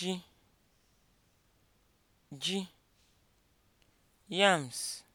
ji yams